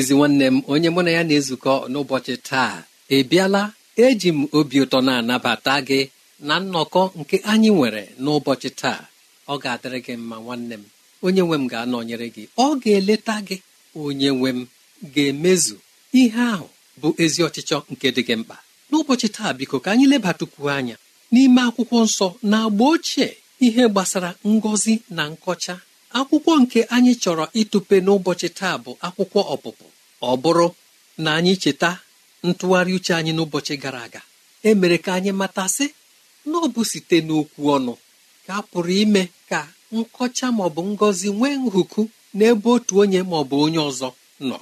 ezi nwanne m onye mụ na ya na-ezukọ n'ụbọchị taa Ebiala, eji m obi ụtọ na-anabata gị na nnọkọ nke anyị nwere n'ụbọchị taa ọ ga-adịrị gị mma nwanne m onye nwe m ga-anọnyere gị ọ ga-eleta gị onye nwe m ga-emezu ihe ahụ bụ ezi ọchịchọ nke dị gị mkpa n'ụbọchị taa biko ka anyị lebatukwu anya n'ime akwụkwọ nsọ na agba ochie ihe gbasara ngọzi na nkọcha akwụkwọ nke anyị chọrọ ịtụpe n'ụbọchị taa bụ akwụkwọ ọpụpụ ọ bụrụ na anyị cheta ntụgharị uche anyị n'ụbọchị gara aga E mere ka anyị matasị na ọ bụ site n'okwu ọnụ ka a pụrụ ime ka nkọcha maọbụ ngọzi nwee nhụku n'ebe otu onye maọbụ onye ọzọ nọ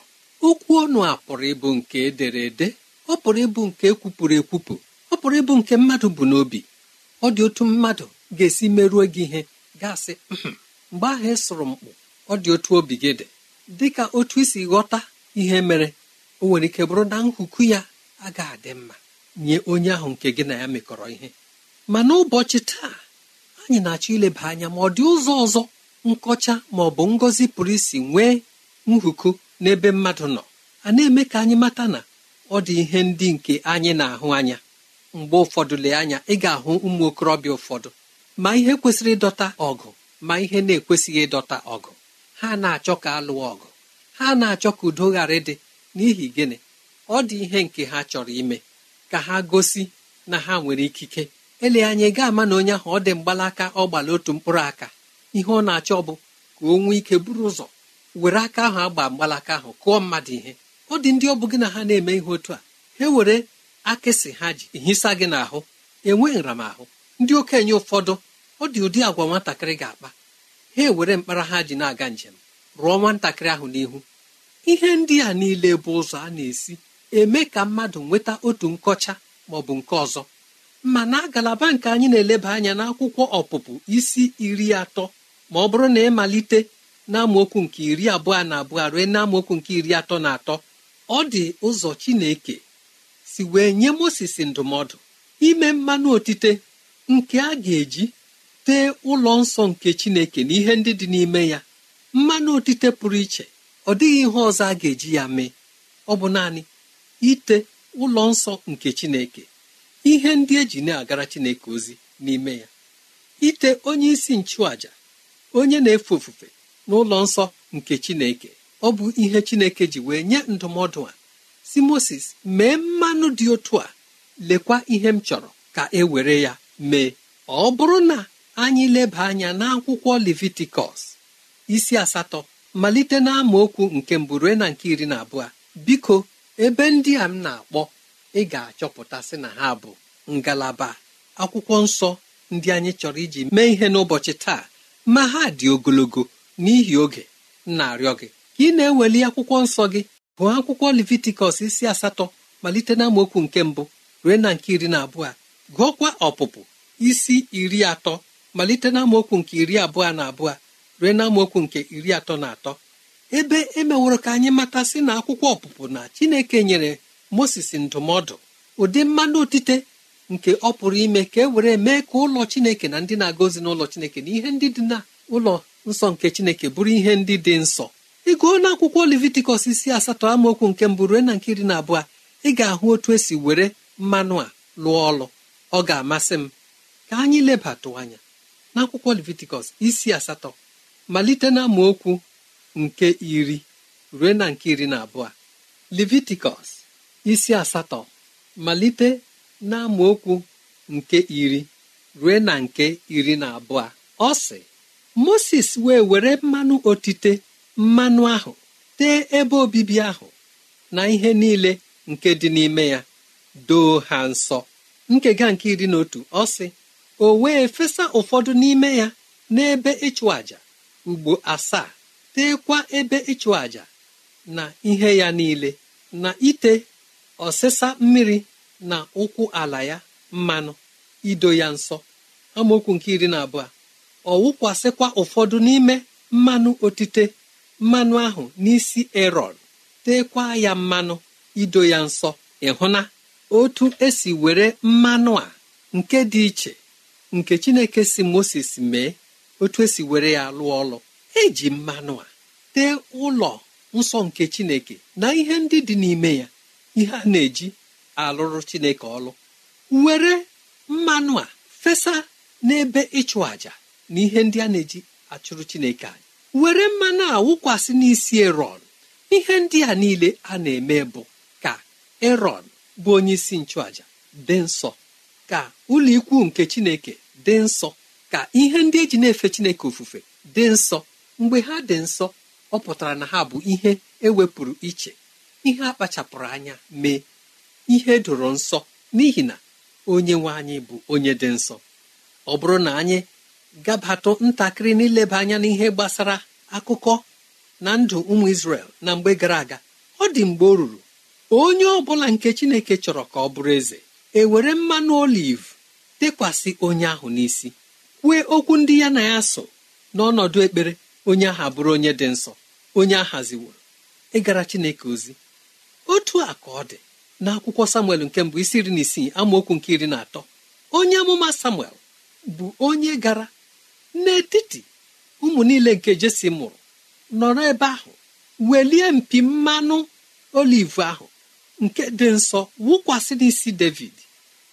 okwu ọnụ a pụrụ ịbụ nke edere ede ọ pụrụ ịbụ nke ekwupụrụ ekwupụ ọ pụrụ ịbụ nke mmadụ bụ n'obi ọ dị otu mmadụ ga-esi merụọ gị ihe ga mgbe ahụ e sụrụ mkpụ ọ dị otu obi gị dị dị ka otu isi ghọta ihe mere o nwere ike bụrụ na nkuku ya agaghị adị mma nye onye ahụ nke gị na ya mekọrọ ihe ma n'ụbọchị taa anyị na-achọ ileba anya ma ọ dị ụzọ ọzọ nkọcha ma ọ bụ ngọzi pụrụ isi nwee nhuku n'ebe mmadụ nọ a na-eme ka anyị mata na ọ dị ihe ndị nke anyị na-ahụ anya mgbe ụfọdụ lee anya ị ga-ahụ ụmụ okorobịa ụfọdụ ma ihe kwesịrị ịdọta ọgụ ma ihe na-ekwesịghị ịdọta ọgụ ha na-achọ ka a lụọ ọgụ ha na-achọ ka udo ghara ịdị n'ihi gịnị ọ dị ihe nke ha chọrọ ime ka ha gosi na ha nwere ikike ele anya ị ga-ama na onye ahụ ọ dị mgbalaka ọ gbala otu mkpụrụ aka ihe ọ na-achọ bụ ka o nwee ike buru ụzọ were aka ahụ agba mgbalaka ahụ kụọ mmadụ ihe ọ dị ndị ọ bụ gị na ha na-eme ihe otu a ha were akịsị ha ji hisa gị n'ahụ enwe nramahụ ndị okenye ụfọdụ ọ dị ụdị agwa nwatakịrị ga-akpa ha ewere mkpara ha ji na-aga njem rụọ nwatakịrị ahụ n'ihu ihe ndị a niile bụ ụzọ a na-esi eme ka mmadụ nweta otu nkọcha ma ọ bụ nke ọzọ ma na ngalaba nke anyị na-eleba anya n'akwụkwọ ọpụpụ isi iri atọ ma ọ bụrụ na ịmalite n'amaokwu nke iri abụọ na abụọ rue n'amaokwu nke iri atọ na atọ ọ dị ụzọ Chineke si wee nye Mozis ndụmọdụ ime mmanụ otite nke a ga-eji tee ụlọ nsọ nke chineke na ihe ndị dị n'ime ya mmanụ otite pụrụ iche ọ dịghị ihe ọzọ a ga-eji ya mee ọ bụ naanị ite ụlọ nsọ nke chineke ihe ndị eji na-agara chineke ozi n'ime ya ite onye isi nchụaja onye na-efe ofufe n'ụlọ nsọ nke chineke ọ bụ ihe chineke ji wee nye ndụmọdụ a si moses mee mmanụ dị otu a lekwa ihe m chọrọ ka e were ya mee ọ bụrụ na anyị leba anya n'akwụkwọ levitikọs isi asatọ malite na amaokwu nke mbụ rue na nke iri na abụọ biko ebe ndị a m na-akpọ ị ga-achọpụta sị na ha bụ ngalaba akwụkwọ nsọ ndị anyị chọrọ iji mee ihe n'ụbọchị taa ma ha dị ogologo n'ihi oge na-arịọ gị ka ị na-eweli akwụkwọ nsọ gị gụọ akwụkwọ levitikọs isi asatọ malite na amaokwu nke mbụ rue na nke iri na abụọ gụọkwa ọpụpụ isi iri atọ malite na amaokwu nke iri abụọ na abụọ rue na amaokwu nke iri atọ na atọ ebe emeworo ka anyị matasị na akwụkwọ ọpụpụ na chineke nyere moses ndụmọdụ ụdị mmanụ otite nke ọ pụrụ ime ka e were mee ka ụlọ chineke na ndị na-aga ozi n'ụlọ chineke na ihe ndị dị na ụlọ nsọ nke chineke bụrụ ihe ndị dị nsọ ịgụọ na akwụkwọ levitikọs isi asatọ amaokwu nke mbụ rue na nke iri na abụọ ị ga-ahụ otu esi were mmanụ a lụọ ọlụ ọ ga-amasị m ka anyị lebatụ anya n'akwụkwọ levitikọs isi asatọ malite na okwu nke iri ruo na nke iri na abụọ levitikọs isi asatọ malite na nke iri ruo na nke iri na abụọ ọ sị moses wee were mmanụ otite mmanụ ahụ tee ebe obibi ahụ na ihe niile nke dị n'ime ya doo ha nsọ nkega nke iri na otu ọ sị o wee fesa ụfọdụ n'ime ya n'ebe ịchụ àjà ugbo asaa teekwa ebe ịchụ àja na ihe ya niile na ite ọsịsa mmiri na ụkwụ ala ya mmanụ ido ya nso. amaokwu nke iri na abụọ ọ wụkwasịkwa ụfọdụ n'ime mmanụ otite mmanụ ahụ n'isi erọn teekwa ya mmanụ ido ya nsọ ịhụna otu esi were mmanụ a nke dị iche nke chineke si moses mee otu esi were ya lụọ ọlụ eji mmanụ a tee ụlọ nsọ nke chineke na ihe ndị dị n'ime ya ihe a na-eji alụrụ chineke ọlụ were mmanụ a fesa n'ebe ịchụ àjà na ihe ndị a na-eji achụrụ chineke anyị were mmanụ a wụkwasị n'isi erọn ihe ndị a niile a na-eme bụ ka erọn bụ onye isi nchụàjà dị nsọ ka ụlọ nke chineke dị nsọ ka ihe ndị e ji na-efe chineke ofufe dị nsọ mgbe ha dị nsọ ọ pụtara na ha bụ ihe ewepụrụ iche ihe akpachapụrụ anya mee ihe doro nsọ n'ihi na onye nwe anyị bụ onye dị nsọ ọ bụrụ na anyị gabatụ ntakịrị n'ileba anya n'ihe gbasara akụkọ na ndụ ụmụ Izrel na mgbe gara aga ọ dị mgbe ọ ruru onye ọ bụla nke Chineke chọrọ ka ọ bụrụ eze ewere mmanụ oliv tekwasị onye ahụ n'isi kwue okwu ndị ya na ya so n'ọnọdụ ekpere onye ahụ abụrụ onye dị nsọ onye a ịgara chineke ozi otu a ka ọ dị n'akwụkwọ samuel nke mbụ isi iri na isii amaokwu nke iri na atọ onye amụma samuel bụ onye gara n'etiti ụmụ niile nke jesi mụrụ nọrọ ebe ahụ welie mpi mmanụ oliv ahụ nke dị nsọ wụkwasị isi david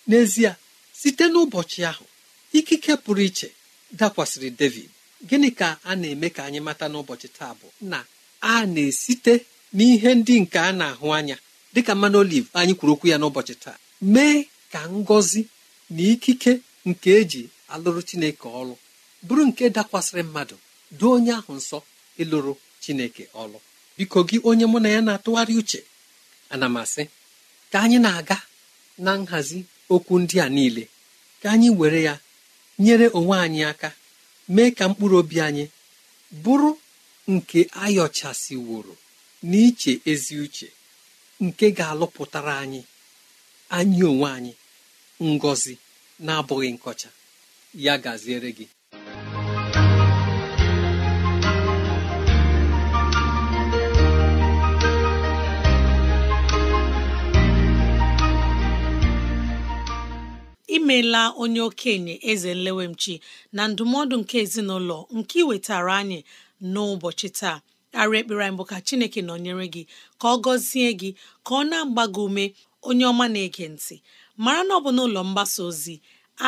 n'ezie site n'ụbọchị ahụ ikike pụrụ iche dakwasịrị david gịnị ka a na-eme ka anyị mata n'ụbọchị taa bụ na a na-esite n'ihe ndị nke a na-ahụ anya dịka mmanụ oliv anyị kwuru okwu ya n'ụbọchị taa mee ka ngozi na ikike nke eji alụrụ chineke ọlụ bụrụ nke dakwasịrị mmadụ doo onye ahụ nsọ ịlụrụ chineke ọlụ biko gị onye mụ na ya na-atụgharị uche ana m asị ka anyị na-aga na nhazi okwu ndị a niile ka anyị were ya nyere onwe anyị aka mee ka mkpụrụ obi anyị bụrụ nke ayọchasịworo n'iche ezi uche nke ga-alụpụtara anyị anyị onwe anyị ngọzi na-abụghị nkọcha ya gaziere gị imeela onye okenye eze nlewemchi na ndụmọdụ nke ezinụlọ nke iwetara anyị n'ụbọchị taa arị ekpere anyị bụ ka chineke nọnyere gị ka ọ gọzie gị ka ọ na-agba gị ume onye ọma na-ege ntị mara na ọ bụ n'ụlọ mgbasa ozi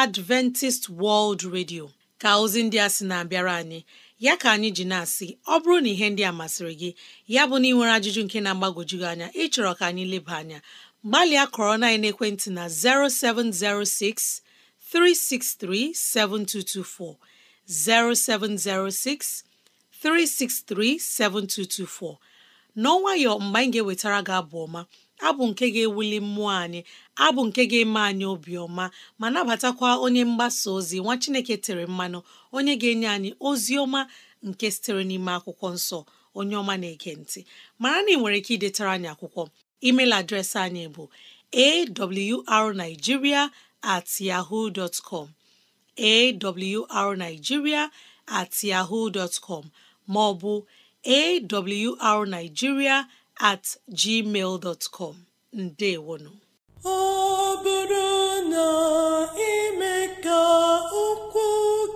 Adventist World Radio ka ozi ndị a sị na-abịara anyị ya ka anyị ji na-asị ọ bụrụ na ihe ndị a masịrị gị ya bụ na ị ajụjụ nke na-agbagwoju anya ịchọrọ ka anyị leba anya gbalịa kọrọ na ekwentị na 0706 363 7224 0706 363 7224 n'ọnwayọ mgbe anyị ga-ewetara gị abụ ọma abụ nke ga-ewuli mmụọ anyị abụ nke ga-eme anyị obiọma ma nabatakwa onye mgbasa ozi nwa Chineke tere mmanụ onye ga-enye anyị ozi ọma nke sitere n'ime akwụkwọ nsọ onye ọma na-ege ntị mara na ị nwere ike idetara anyị akwụkwọ email adreesị anyị bụ awrnigeria at yahoo dot com awrnigeria at yahoo dot com maọbụ awrnigeria at gmail dot com ndewonu ọ bụrụ na ime ka okwu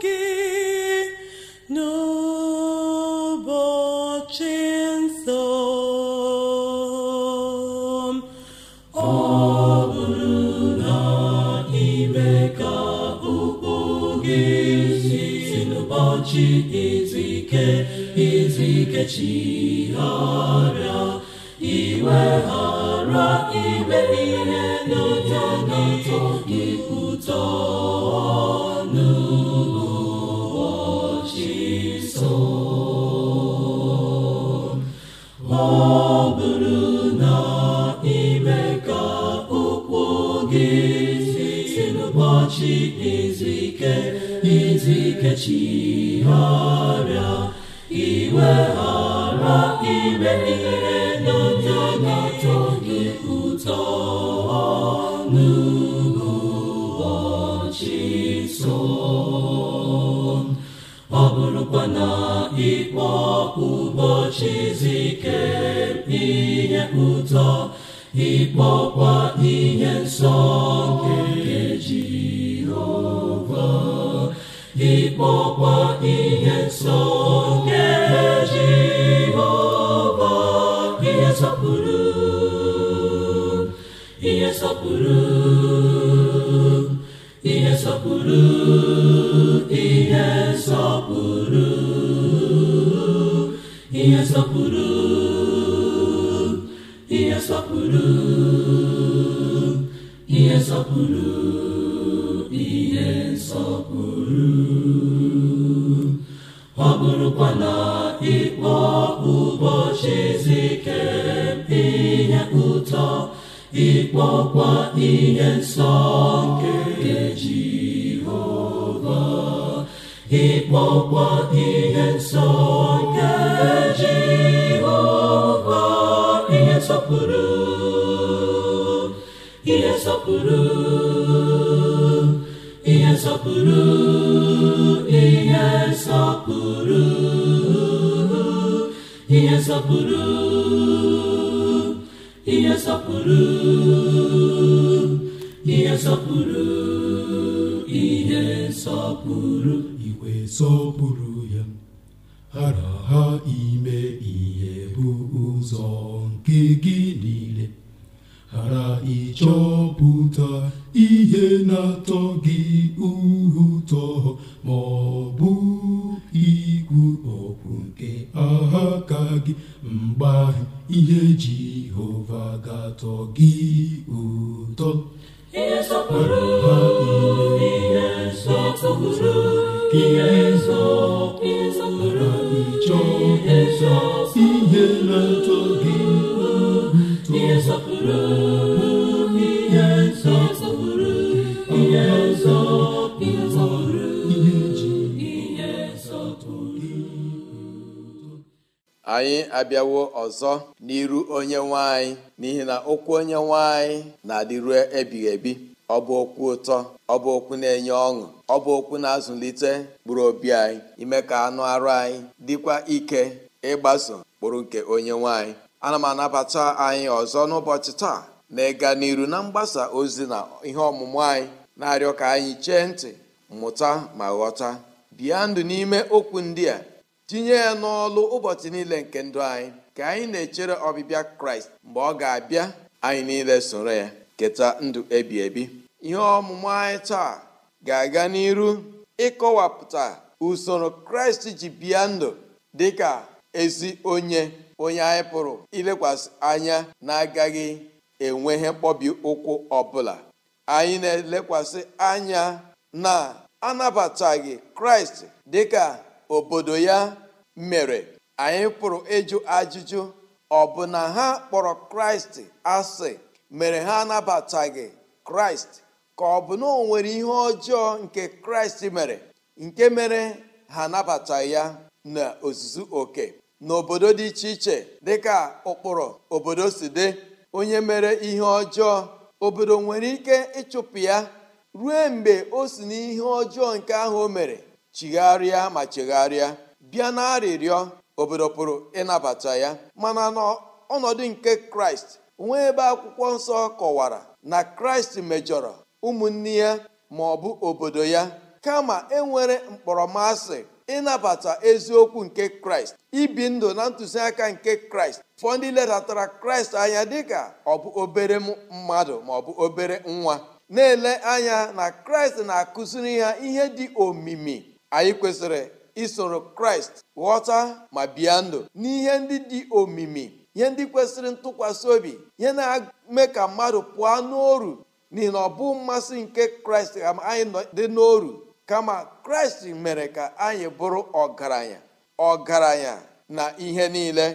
gị n'ụbọchị ụbọchị izu ike izu ike chi ọrịa iwe ghara ime ihe n'ụbọchị so ọ bụrụ na ime ka ụkwụ gị si n'ụbọchị izu ike izu ike ihe iwe iweghara ime ihere n'oge na gị ụtọ n'ụbọchị nso ọ bụrụkwa na ịkpọ ụbọchị zike ihe ụtọ ịkpọkwa ihe nsọ nke ịkpọkwa ihe nsọ nye Jehova ihe nsọpụrụ ihe nsọpụrụ ihe nsọpụrụ ihe nsọpụrụ ihe nsọpụrụ ihe nsọpụrụ ihe nsọpụrụ ekwela ịkpọ ụbọchị izu ike ihe ụtọ ịkpọkwa ihe nsọ nke Jehova ịkpọkwa ihe nsọ nke Jehova ihe nsọpụrụ ihe nsọpụrụ ihe nsọpụrụ ihe nsọpụrụ ihe ihe nsọpụrụ ihe nsọpụrụ iwe sọpụrụ ya hara ha ime ihe bụ ụzọ nke gị niile ghara ịchọpụta ihe na-atọ gị ma ọ bụ ikwu okwu nke aka gị mgbe ihe ihe Jehova ga-atọ gị ụtọ ihe na ntọ anyị abịawo ọzọ n'iru onye nwanyị n'ihi na okwu onye nwanyị na-adịru ebighị ebi ọ bụ okwu ụtọ ọ bụ okwu na-enye ọṅụ ọ bụ okwu na-azụlite mkpụrụ obi anyị ime ka anụ arụ anyị dịkwa ike ịgbaso mkpụrụ nke onye nwanyị ana m anabata anyị ọzọ n'ụbọchị taa na ịga n'iru na mgbasa ozi na ihe ọmụmụ anyị na-arịọ ka anyị chee ntị mmụta ma ghọta bịa ndụ n'ime okwu ndị a tinye ya n'ọlụ ụbọchị niile nke ndụ anyị ka anyị na-echere ọbịbịa kraịst mgbe ọ ga-abịa anyị niile soro ya keta ndụ ebi ebi ihe ọmụmụ anyị taa ga-aga n'iru ịkọwapụta usoro kraịst ji bịa ndụ dị ka ezi onye onye anyị pụrụ ilekwasị anya na-agaghị enwe ihe mkpọbi ụkwụ ọbụla anyị na-elekwasị anya na anabataghị kraịst dịka obodo ya mere anyị pụrụ ịjụ ajụjụ ọ bụ na ha kpọrọ kraịst asị mere ha anabataghị kraịst ka ọ bụ na o nwere ihe ọjọọ nke kraịst mere nke mere ha anabataghị ya na ozuzu oke n'obodo dị iche iche dịka ụkpụrụ obodo si dị onye mere ihe ọjọọ obodo nwere ike ịchụpụ ya ruo mgbe o si n'ihe ọjọọ nke ahụ o mere chigharịa ma chegharịa bịa na arịrịọ obodo pụrụ ịnabata ya mana n'ọnọdụ nke kraịst nwee ebe akwụkwọ nsọ kọwara na kraịst mejọrọ ụmụnne ya ma ọ bụ obodo ya kama enwere mkpọrọmasị ịnabata eziokwu nke kraịst ibi ndụ na ntụziaka nke kraịst fọ ndị ledatara kraịst anya dịka ọ bụ obere mmadụ ma ọ bụ obere nwa na-ele anya na kraịst na-akụziri ha ihe dị omimi anyị kwesịrị isoro kraịst ghọta ma bịa ndụ n'ihe ndị dị omimi ihe ndị kwesịrị ntụkwasị obi ihe na-eme ka mmadụ pụọ n'oru n'ihi na ọ bụ mmasị nke kraịst ka anyị dị n'oru kama kraịst mere ka anyị bụrụ ọgaranya ọgaranya na ihe niile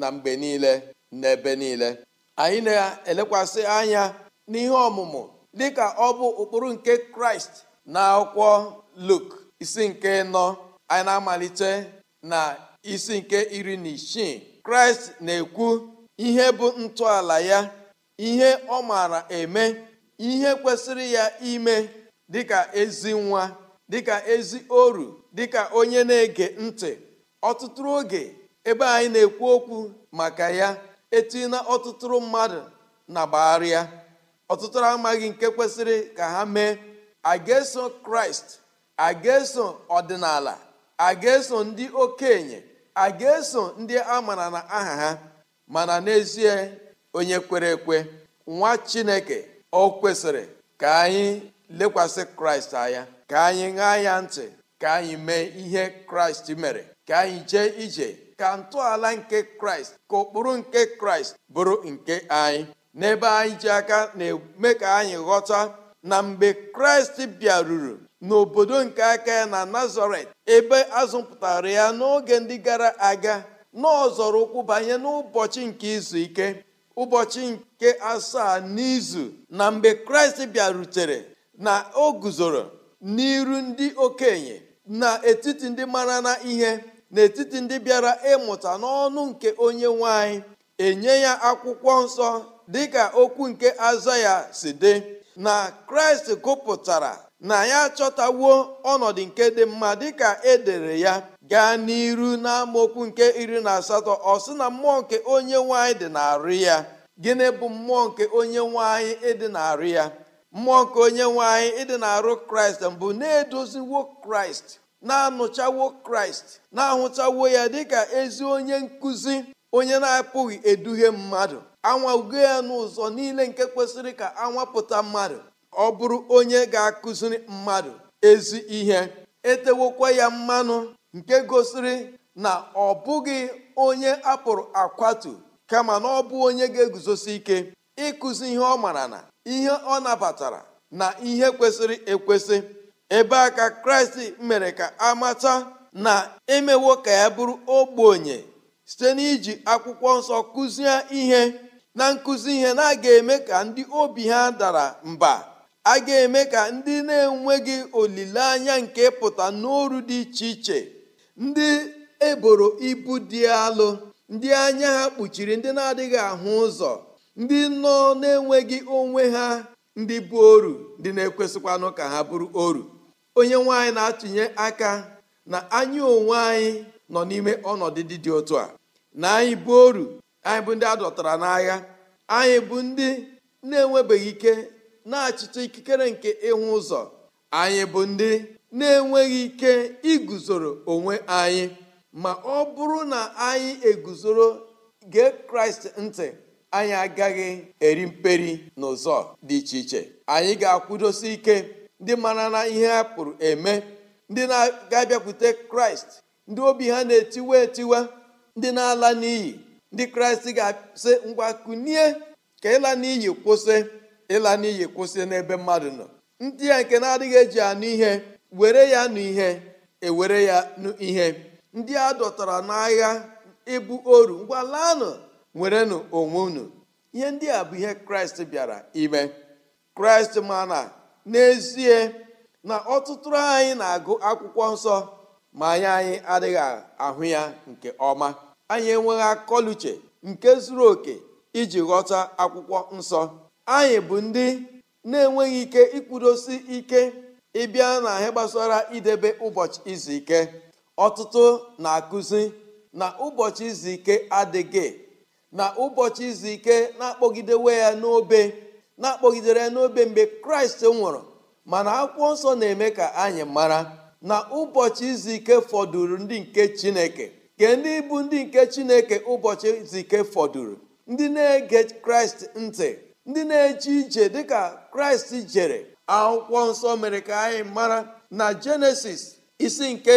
na mgbe niile na ebe niile anyị na-elekwasị anya n'ihe ọmụmụ dịka ọ bụ ụkpụrụ nke kraịst na akwụkwọ luk isi nke nọ anyị na-amalite na isi nke iri na isii kraịst na-ekwu ihe bụ ntọala ya ihe ọ maara eme ihe kwesịrị ya ime dịka ezi nwa dịka ezi oru dịka onye na-ege ntị ọtụtụrụ oge ebe anyị na-ekwu okwu maka ya etina ọtụtụrụ mmadụ na gbagharịa ọtụtụ amaghị nke kwesịrị ka ha mee a ga-eso kraịst a ga-eso ọdịnala a ga-eso ndị okenye a ga-eso ndị amara na aha ha mana n'ezie onye kwere ekwe nwa chineke o kwesịrị ka anyị lekwasị kraịst anya ka anyị ṅaa ya ntị ka anyị mee ihe kraịst mere ka anyị jee ije ka ntọala nke kraịst ka ụkpụrụ nke kraịst bụrụ nke anyị n'ebe anyị ji aka na-eme ka anyị ghọta na mgbe kraịst bịaruru n'obodo nke aka ya na nazaret ebe azụpụtara ya n'oge ndị gara aga n'ọzọrọ ụkwụ banye n'ụbọchị nke izu ike ụbọchị nke asaa n'izu na mgbe kraịst bịarutere na o guzoro n'iru ndị okenye etiti ndị mara na ihe n'etiti ndị bịara ịmụta n'ọnụ nke onye nwanyị enye ya akwụkwọ nsọ dịka okwu nke aza ya si dị na kraịst gụpụtara na ya achọtawo ọnọdụ nke dị mma dịka edere ya gaa n'iru n'amaokwu nke iri na asatọ ọ sị na mmụọ nke onye nwanyị dị n'arị ya gịnị bụ mmụọ nke onye nwanyị ịdị n'arị ya mmụọ nke onye nwanyị ịdị narụ kraịst mbụ na-edoziwo kraịst na-anụchawo kraịst na-ahụchawo ya dịka ezi onye nkụzi onye na-apụghị eduhie mmadụ ugo ya n'ụzọ niile nke kwesịrị ka anwapụta mmadụ ọ bụrụ onye ga-akụziri mmadụ ezi ihe etewokwa ya mmanụ nke gosiri na ọ bụghị onye apụrụ akwatu kama na ọ bụ onye ga-eguzosi ike ịkụzi ihe ọ mara na ihe ọ nabatara na ihe kwesịrị ekwesị ebe a ka kraịst mere ka amata na emewo ka ya bụrụ ogbenye site n'iji akwụkwọ nsọ kụzie ihe na nkụzi ihe na-aga eme ka ndị obi ha dara mba a ga-eme ka ndị na-enweghị olileanya nke pụta n'ọrụ dị iche iche ndị eboro ibu dị alụ ndị anya ha kpuchiri ndị na-adịghị ahụ ụzọ ndị nọ na-enweghị onwe ha ndị bụ oru ndị na-ekwesịkwanụ ka ha bụrụ oru onye nwanyị na-atụnye aka na anyị onwe anyị nọ n'ime ọnọdụ dị dị otu a na anyị bụ oru anyị bụ ndị a dọtara n'agha anyị bụ ndị na-enwebeghị ike na-achịcha ikikere nke ịhụ ụzọ anyị bụ ndị na-enweghị ike iguzoro onwe anyị ma ọ bụrụ na anyị eguzoro gee kraịst ntị anyị agaghị eri mperi n'ụzọ dị iche iche anyị ga-akwụdosi ike ndị mara na ihe ha pụrụ eme ndị na-abịakwute kraịst ndị obi ha na-etiwe etiwe ndị na-ala n'iyi ndị kraịst ga-asị ngwa kunie ka ịla n'iyi kwụsị ịla n'iyi kwụsị n'ebe mmadụ nọ ndị a nke na-adịghị eji anụ ihe were ya nụ ihe ewere ya nụ ihe ndị a dọtara n'agha ịbụ oru ngwa laanụ werenụ onwe unu ihe ndị a bụ ihe kraịst bịara ime kraịst ma na n'ezie na ọtụtụ anyị na-agụ akwụkwọ nsọ ma anya anyị adịghị ahụ ya nke ọma anyị enweghị akọluche nke zuru oke iji ghọta akwụkwọ nsọ anyị bụ ndị na-enweghị ike ikwudosi ike ịbịa na ahịa gbasara idebe ụbọchị izu ike ọtụtụ na-akụzi na ụbọchị izu ike adịghị na ụbọchị izu ike na-akpọgidewe ya n'obe na-akpọgidere ya n'obe mgbe kraịst nwụrụ mana akwụkwọ nsọ na-eme ka anyị mara na ụbọchị izu ike fọdụrụ ndị nke chineke ke ndị bụ ndị nke chineke ụbọchị izu ike fọdụrụ ndị na-ege kraịst ntị ndị na-eche ije dịka kraịst jere akwụkwọ nsọ mere ka anyị mara na jenesis isi nke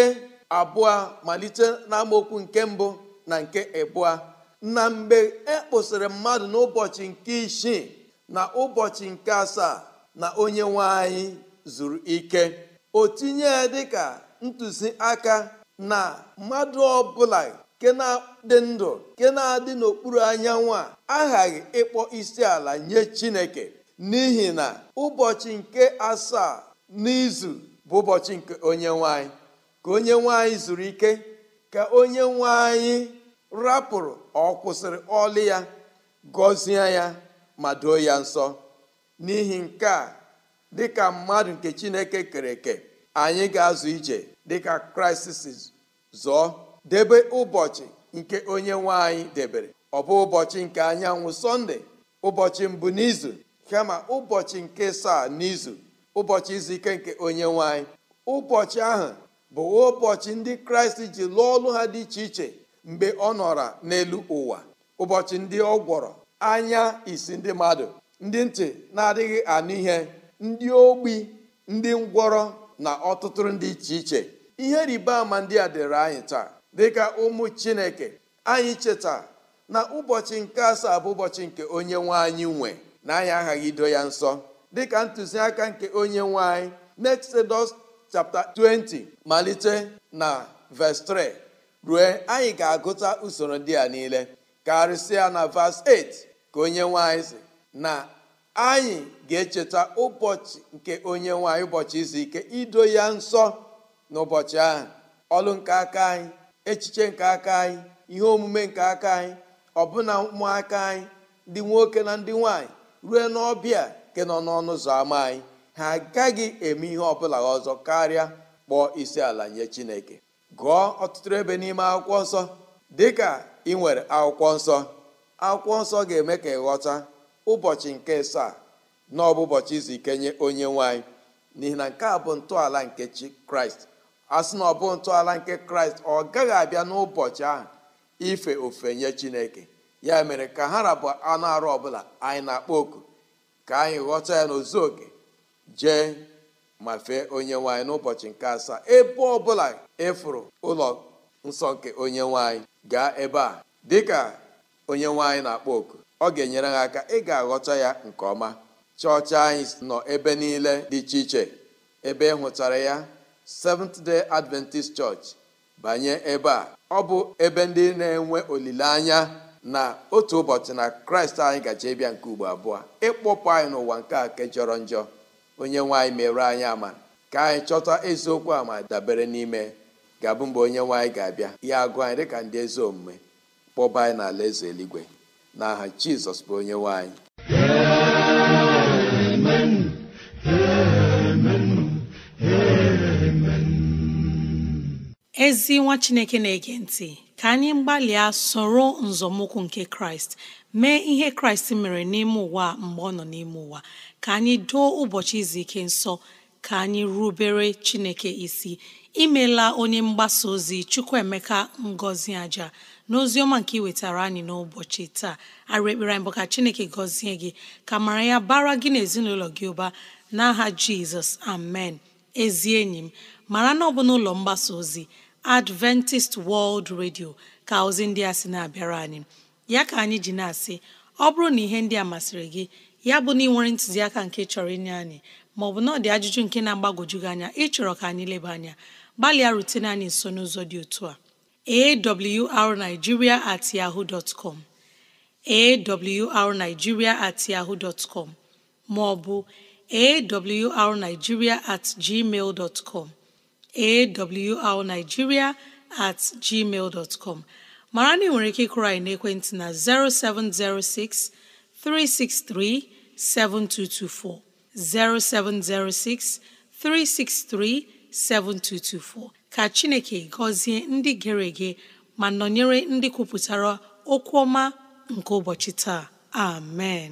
abụọ malite n'amaokwu nke mbụ na nke abụọ na mgbe e kpụsịrị mmadụ n'ụbọchị nke isii na ụbọchị nke asaa na onye nwe anyị zuru ike o tinye dịka ntụziaka na mmadụ ọbụla nke na-adị ndụ nke na-adị n'okpuru anyanwụ a aghaghị ịkpọ isi ala nye chineke n'ihi na ụbọchị nke asaa n'izu bụ ụbọchị nke onye nwanyị ka onye nwanyị zuru ike ka onye nwanyị rapụrụ ọ kwụsịrị ọlị ya gọzie ya ma doo ya nsọ n'ihi nke a dịka mmadụ nke chineke kere eke anyị ga-azụ ije dịka kraịst si zọọ debe ụbọchị nke onye nwe anyị debere ọ bụ ụbọchị nke anyanwụ sọnde ụbọchị mbụ n'izu kama ụbọchị nke saa n'izu ụbọchị izu ike nke onye nwe anyị ụbọchị ahụ bụ ụbọchị ndị kraịst ji lụọ ọlụ ha dị iche iche mgbe ọ nọra n'elu ụwa ụbọchị ndị ọ gwọrọ anya isi ndị mmadụ ndị ntị na-adịghị anụ ihe ndị ogbi ndị ngwọrọ na ọtụtụ ndị iche iche ihe rịba ama ndị a dịrị anyị taa dịka ụmụ chineke anyị cheta na ụbọchị nke asaa bụ ụbọchị nke onye nwe anyị nwe na anyị aghaghị ido ya nsọ dịka ntụziaka nke onye nwanyị anyị n'Exodus chapter 20 malite na verse 3 ruo anyị ga-agụta usoro ndị a niile karịsịa na verse 8 ka onye nwe anyị si na anyị ga-echeta ụbọchị nke onye nwe anyị ụbọchị izu ike ido ya nsọ n'ụbọchị ahụ ọlụ nke aka anyị echiche nke aka anyị ihe omume nke aka anyị ọbụna ụmụaka anyị ndị nwoke na ndị nwaanyị ruo n'ọbịa nke nọ n'ọnụ ụzọ ámá anyị ha agaghị eme ihe ọbụla ọzọ karịa kpọọ isi ala nye chineke gụọ ọtụtụ ebe n'ime akwụkwọ nsọ dịka ị nwere akwụkwọ nsọ akwụkwọ nsọ ga-eme ka ịghọta ụbọchị nke saa na ọbụ ụbọchị izu ike nye onye nwaanyị n'ihi na nke a bụ ntọala nke chi kraịst asị na ọ bụ ntọala nke kraịst ọ gaghị abịa n'ụbọchị ahụ ife ofe nye chineke ya mere ka ha rabụ anụ arụ ọbụla anyị na-akpọ oku ka anyị ghọta ya n'ozu oke jee ma fee onye nwanyị n'ụbọchị nke asaa ebe ọbụla ịfụrụ ụlọ nsọ nke onye nwanyị gaa ebe a dịka onye nwanyị na-akpọ oku ọ ga-enyere ha aka ị ga-aghọta ya nke ọma chọọchị anyị nọ ebe niile dị iche iche ebe ị hụtara ya Seventh Day Adventist Church banye ebe a ọ bụ ebe ndị na-enwe olileanya na otu ụbọchị na kraịst anyị gaje ịbịa nke ugbo abụọ ịkpọpụ anyị n'ụwa nke a ke jọrọ njọ onye nwaanyị mere anyị ama ka anyị chọta eziokwu ama dabere n'ime ga-abụ mgbe onye nwaanyị ga-abịa ya agụ anyị dịka ndị ezi omume kpọba anyị n'ala eze eluigwe aha jizọs bụ onye nwaanyị ezi nwa chineke na-ege ntị ka anyị gbalịa soro nzọmụkwụ nke kraịst mee ihe kraịst mere n'ime ụwa mgbe ọ nọ n'ime ụwa ka anyị doo ụbọchị izu ike nsọ ka anyị rubere chineke isi imela onye mgbasa ozi chukwuemeka ngọzi aja n'ozi ọma nke iwetara anyị n'ụbọchị taa arụ ekpere anyị bụ ka chineke gọzie gị ka mara ya bara gị n'ezinụlọ gị ụba n'aha jizọs amen ezi enyi m mara na ọ bụ n'ụlọ mgbasa ozi Adventist World Radio ka ozi ndị a sị na-abịara anyị ya ka anyị ji na-asị ọ bụrụ na ihe ndị a masịrị gị ya bụ na ị nwere ntụziaka nke chọrọ inye anyị ma ọ bụ na ọ dị ajụjụ nke na-agbagwoju gị anya ịchọrọ ka anyị leba anya gbalịa rutene anyị nso n'ụzọ dị otu a awrnigeria at yahoo dot com at yahoo dot com ma ọ bụ awrnigeria at gmail dot com awrnigeria at gmail dot com mara na ị nwere ike ịkụrụ anyị ekwentị na 0706 363 7224 0706 363 7224 ka Chineke gọzie ndị gịrị gị ma nọnyere ndị kwupụtara okwu ọma nke ụbọchị taa amen